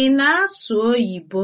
Ị na-asụ oyibo?